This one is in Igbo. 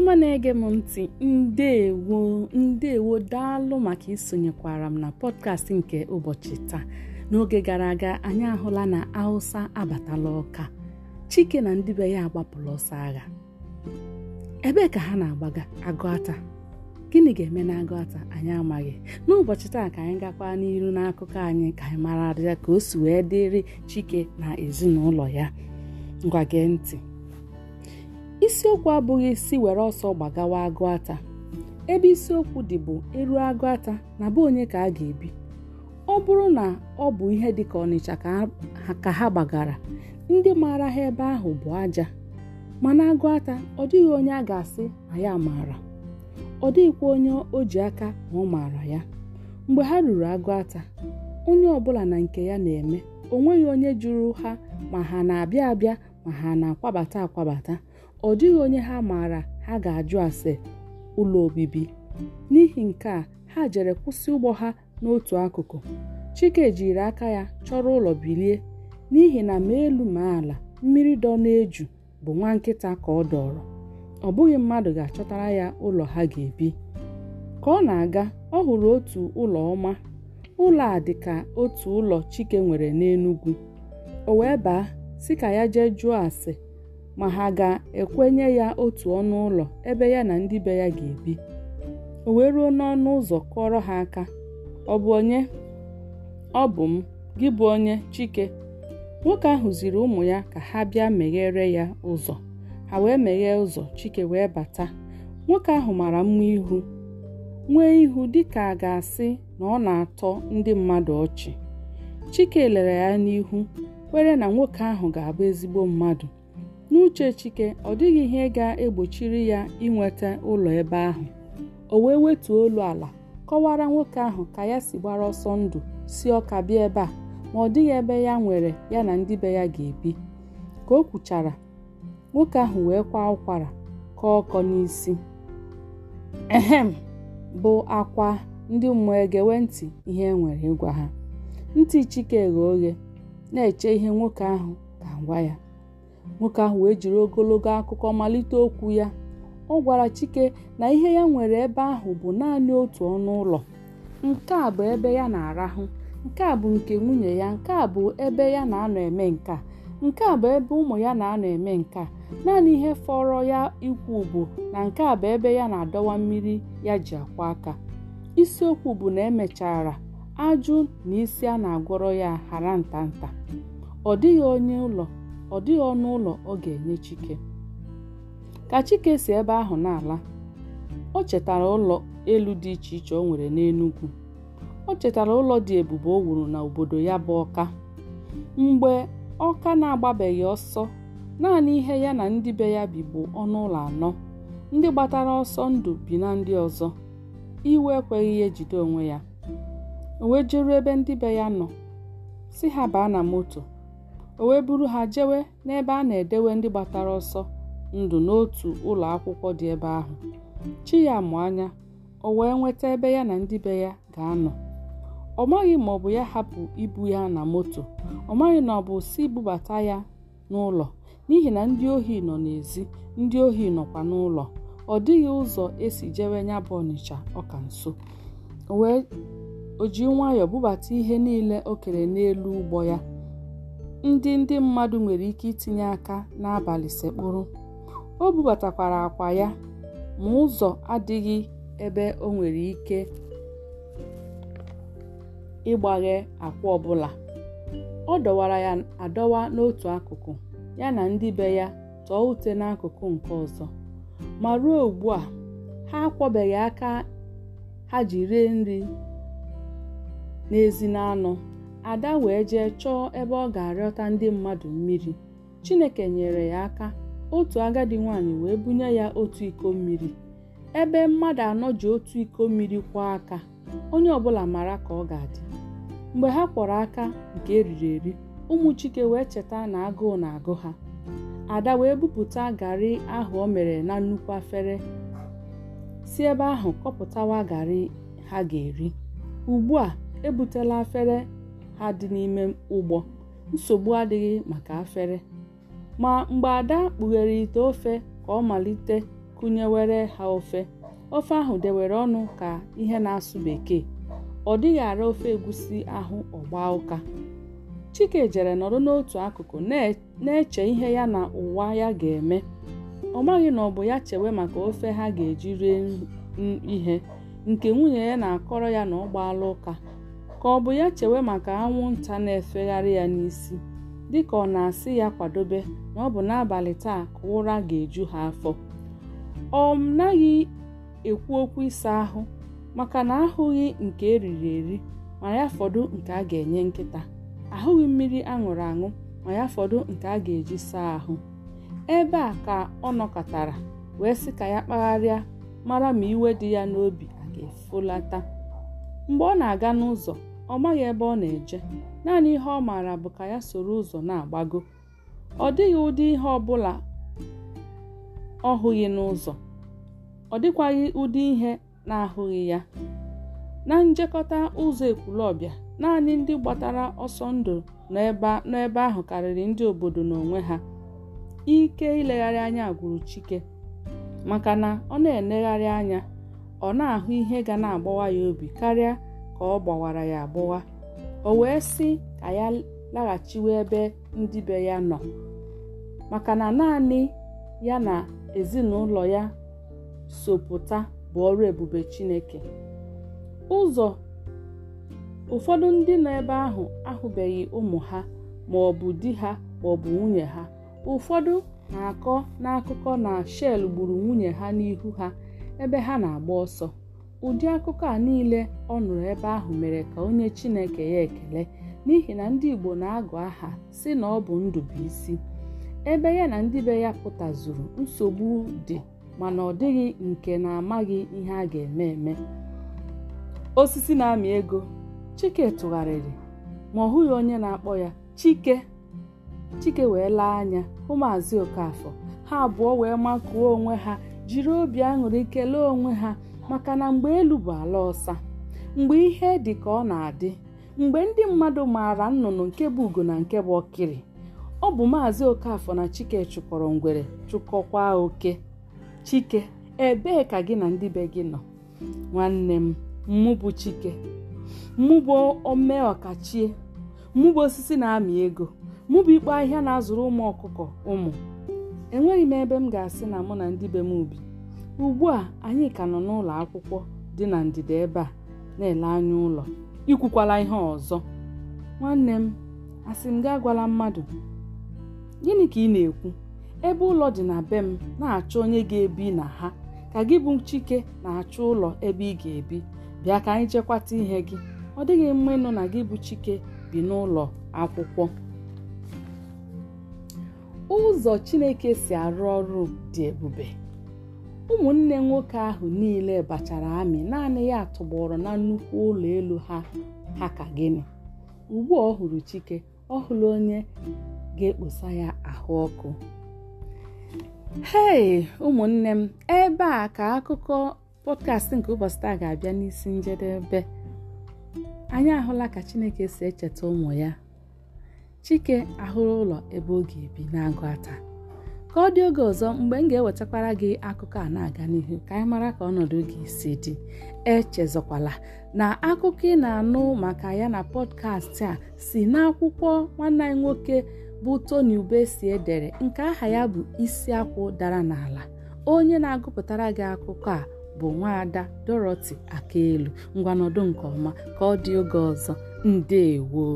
ọma na-ege m ntị ndewo ndewo daalụ maka isonyekwara m na pọdkast nke ụbọchị taa n'oge gara aga anyị ahụla na awụsa abatala ọka Chike na ndị be ya agbapụla ọsọ agha ebee ka ha na-agbaga agụata gịnị ga-eme na agụata anyị amaghị n'ụbọchị taa ka anyị gakwa n'iru n'akụkọ anyị ka anyị mara ya ka o si wee dịrị Chike na ezinụlọ ya ngwa gee ntị isiokwu abụghị isi were ọsọ gbagawa agụ ata ebe isiokwu dị bụ eru agụ ata na bụ onye ka a ga-ebi ọ bụrụ na ọ bụ ihe dị ka ọnịcha ka ha gbagara ndị maara ha ebe ahụ bụ aja mana agụ ata ọ dịghị onye a ga-asị na ya maara ọ dịghịkwa onye o ji aka na ọ maara ya mgbe ha ruru agụata onye ọbụla na nke ya na-eme o nweghị onye jụrụ ha ma ha na-abịa abịa ma ha na-akwabata akwabata ọ dịghị onye ha maara ha ga-ajụ ase ụlọ obibi n'ihi nke a ha jere kwụsị ụgbọ ha n'otu akụkụ chike jiri aka ya chọrọ ụlọ bilie n'ihi na ma elu ma ala mmiri dọ na-eju bụ nwa nkịta ka ọ dọrọ ọ bụghị mmadụ ga-achọtara ya ụlọ ha ga-ebi ka ọ na-aga ọ hụrụ otu ụlọ ọma ụlọ a dị ka otu ụlọ chike nwere n'Enugu o wee baa si ka ya jee jụọ ase ma ha ga-ekwenye ya otu ọnụ ụlọ ebe ya na ndị be ya ga-ebi o wee ruo n'ọnụ ụzọ kụọrọ ha aka ọ bụ onye ọ bụ m gị bụ onye chike nwoke ahụ ziri ụmụ ya ka ha bịa meghere ya ụzọ ha wee meghee ụzọ chike wee bata nwoke ahụ mara mma ihu nwee ihu dịka a ga-asị na ọ na-atọ ndị mmadụ ọchị chike lere ya n'ihu kwere na nwoke ahụ ga-abụ ezigbo mmadụ n'uche chike ọ dịghị ihe ga-egbochiri ya inweta ụlọ ebe ahụ o wee wetuo olu ala kọwara nwoke ahụ ka ya si gbara ọsọ ndụ si ọka bịa ebe a ma ọ dịghị ebe ya nwere ya na ndị be ya ga-ebi ka o kwuchara nwoke ahụ wee kwa ụkwara ka ọkọ n'isi ehem bụ akwa ndị mmụọ egewe ntị ihe e nwere ịgwa ha ntị chike ghe oghe na-eche ihe nwoke ahụ ga-agwa ya nwoke ahụ wee jiri ogologo akụkọ malite okwu ya ọ gwara chike na ihe ya nwere ebe ahụ bụ naanị otu ọnụ ụlọ nke a bụ ebe ya na-arahụ nke a bụ nke nwunye ya nke a bụ ebe ya na-anọ eme nka nke a bụ ebe ụmụ ya na-anọ eme nka naanị ihe fọrọ ya ikwu bụ na nke a bụ ebe ya na-adọwa mmiri ya ji akwa aka isiokwu bụ na emechara ajụ na isi a na-agwọrọ ya hara nta ọ dịghị onye ụlọ ọ dịghị ọnụ ụlọ ọ ga-enye Chike ka Chike si ebe ahụ n'ala, ala o chetara ụlọ elu dị iche iche o nwere n'Enugwu o chetara ụlọ dị ebube o wuru na obodo ya bụ Ọka mgbe Ọka na-agbabeghị ọsọ naanị ihe ya na ndị be ya bi bụ ọnụ ụlọ anọ ndị gbatara ọsọ ndụ bi na ndị ọzọ iwe ekweghị ya ejide onwe ya o wee ebe ndị be ya nọ si ha baa na moto o wee buru ha jewe n'ebe a na-edewe ndị gbatara ọsọ ndụ n'otu ụlọ akwụkwọ dị ebe ahụ chi ya mụ anya o wee nweta ebe ya na ndị be ya ga-anọ ọ maghị ma ọ bụ ya hapụ ibu ya na moto ọ maghị na ọ bụ si bubata ya n'ụlọ n'ihi na ndị ohi nọ n'ezi ndị ohi nọkwa n'ụlọ ọ dịghị ụzọ esi jewe nya bụ ọnịcha ọka nso wee o ji nwayọọ bubata ihe niile o kere n'elu ụgbọ ya ndị ndị mmadụ nwere ike itinye aka n'abalị sekpụrụ. O bubatakwara akwa ya ma ụzọ adịghị ebe o nwere ike ịgbaghe akwa ọbụla. Ọ dọwara ya adọwa n'otu akụkụ ya na ndị be ya tọọ ute n'akụkụ nke ọzọ. Ma ruo ugbu a, ha akwọbeghị aka ha ji rie nri n'èzí na ada wee jee chọọ ebe ọ ga-arịọta ndị mmadụ mmiri chineke nyere ya aka otu agadi nwanyị wee bunye ya otu iko mmiri ebe mmadụ anọ ji otu iko mmiri kwọọ aka onye ọbụla mara ka ọ ga-adị mgbe ha kpọrọ aka nke eriri eri ụmụ chike wee cheta na agụụ na-agụ ha ada wee bupụta garị ahụ o mere na nnukwu afere si ebe ahụ kọpụtawa garị ha ga-eri ugbu a ebutela afere ha dị n'ime ụgbọ nsogbu adịghị maka afere ma mgbe ada kpughere ite ofe ka ọ malite kụnyewere ha ofe ofe ahụ dewere ọnụ ka ihe na-asụ bekee ọ dịghị ara ofe egusi ahụ ọgba ụka chike jere nọrọ n'otu akụkụ na-eche ihe ya na ụwa ya ga-eme ọ maghị na ọ bụ ya chewe maka ofe ha ga-eji rie ihe nke nwunye ya na-akọrọ ya na ọ gbaala ụka ka ọ bụ ya chewe maka anwụnta na-efegharị ya n'isi dịka ọ na-asị ya kwadobe na ọ bụ n'abalị taa ka ụra ga-eju ha afọ ọ naghị ekwu okwu ịsa ahụ maka na ahụghị nke eriri eri ma ya fọdụ nke a ga-enye nkịta ahụghị mmiri aṅụrụ aṅụ ma ya fọdụ nke a ga-eji saa ahụ ebe a ka ọ nọkọtara wee sị ka ya kpagharịa mara ma iwe dị ya n'obi a ga-efolata mgbe ọ na-aga n'ụzọ ọ maghị ebe ọ na-eje naanị ihe ọ maara bụ ka ya soro ụzọ na-agbago ọ dịghị ụdị ihe ọ bụla ọ hụghị n'ụzọ ọ dịkwaghị ụdị ihe na-ahụghị ya na njekọta ụzọ ekwulọbịa naanị ndị gbatara ọsọ ndụ n'ebe ahụ karịrị ndị obodo n'onwe ha ike ilegharị anya gwuru Chike maka na ọ na-enegharị anya ọ na-ahụ ihe ga na-agbawa ya obi karịa ka ọ gbawara ya agbụwa o wee sị ka ya laghachiwe ebe ndị be ya nọ maka na naanị ya na ezinụlọ ya sopụta bụ ọrụ ebube Chineke ụzọ ụfọdụ ndị nọ ebe ahụ ahụbeghị ụmụ ha ma ọ bụ di ha ma ọ bụ nwunye ha ụfọdụ na-akọ n'akụkọ na Shel gburu nwunye ha n'ihu ha ebe ha na-agba ọsọ ụdị akụkọ a niile ọ nụrụ ebe ahụ mere ka onye Chineke ya ekele n'ihi na ndị Igbo na-agụ aha si na ọ bụ ndụ bụ isi ebe ya na ndị be ya pụtazuru nsogbu dị mana ọ dịghị nke na-amaghị ihe a ga-eme eme osisi na-amị ego Chike tụgharịrị ma ọ hụghị onye na-akpọ ya Chike Chike wee laa anya hụ Maazị Okafọ ha abụọ wee makụọ onwe ha jiri obi aṅụrị kelee onwe ha maka na mgbe elu bụ ala ọsa mgbe ihe dị ka ọ na-adị mgbe ndị mmadụ maara nnụnụ nke bụ ugo na nke bụ ọkịrị ọ bụ maazị Okafọ na Chike chụkọrọ ngwere chụkọkwa oke Chike ebee ka gị na ndị be gị nọ nwanne m mụ bụ Chike mụ bụ ome ọkachie mụ bụ osisi na-amị ego mụ bụ ahịa na-azụrụ ụmụ ọkụkọ ụmụ enweghị m ebe m ga-asị na mụ na ndị be m ubi ugbu a anyị ka nọ n'ụlọ akwụkwọ dị na ndịda ebe a na-ele anya ụlọ ikwukwala ihe ọzọ nwanne m asị m gị gwala mmadụ gịnị ka ị na-ekwu ebe ụlọ dị na be m na-achọ onye ga-ebi na ha ka gị bụ chike na-achọ ụlọ ebe ị ga-ebi bịa ka anyị chekwata ihe gị ọ dịghị mma ịnụ na gị bụ chike bi n'ụlọ akwụkwọ ụzọ Chineke si arụ ọrụ dị ebube ụmụnne nwoke ahụ niile bachara amị naanị ya tụgbọrọ na nnukwu ụlọ elu ha ha ka gịnị ugbu ọ hụrụ chike ọ hụrụ onye ga-ekposa ya ahụ ọkụ hei ụmụnne m ebe a ka akụkọ pọdkastị nke ụbọchị taa ga-abịa n'isi njedebe anyị ahụla ka chineke si echeta ụmụ ya chike ahụrụ ụlọ ebe oge ebi na-agụ ata ka ọ dị oge ọzọ mgbe m ga-ewetakwara gị akụkọ a na-aga n'ihu ka anyị mara ka ọnọdụ gị si dị echezọkwala na akụkọ ị na-anụ maka ya na pọdkastị a si n'akwụkwọ nwanne anyị nwoke bụ Tony Ubesi edere nke aha ya bụ isi akwụ dara n'ala onye na-agụpụtara gị akụkọ a bụ nwaada Dorothy Akaelu ngwanọdụ nke ọma ka ọ dị oge ọzọ ndewo